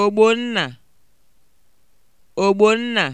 Ogbonna Ogbonna